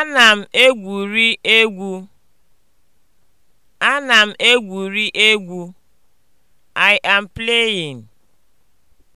Ana m egwuri egwu. Ana m egwuri egwu. I am playing.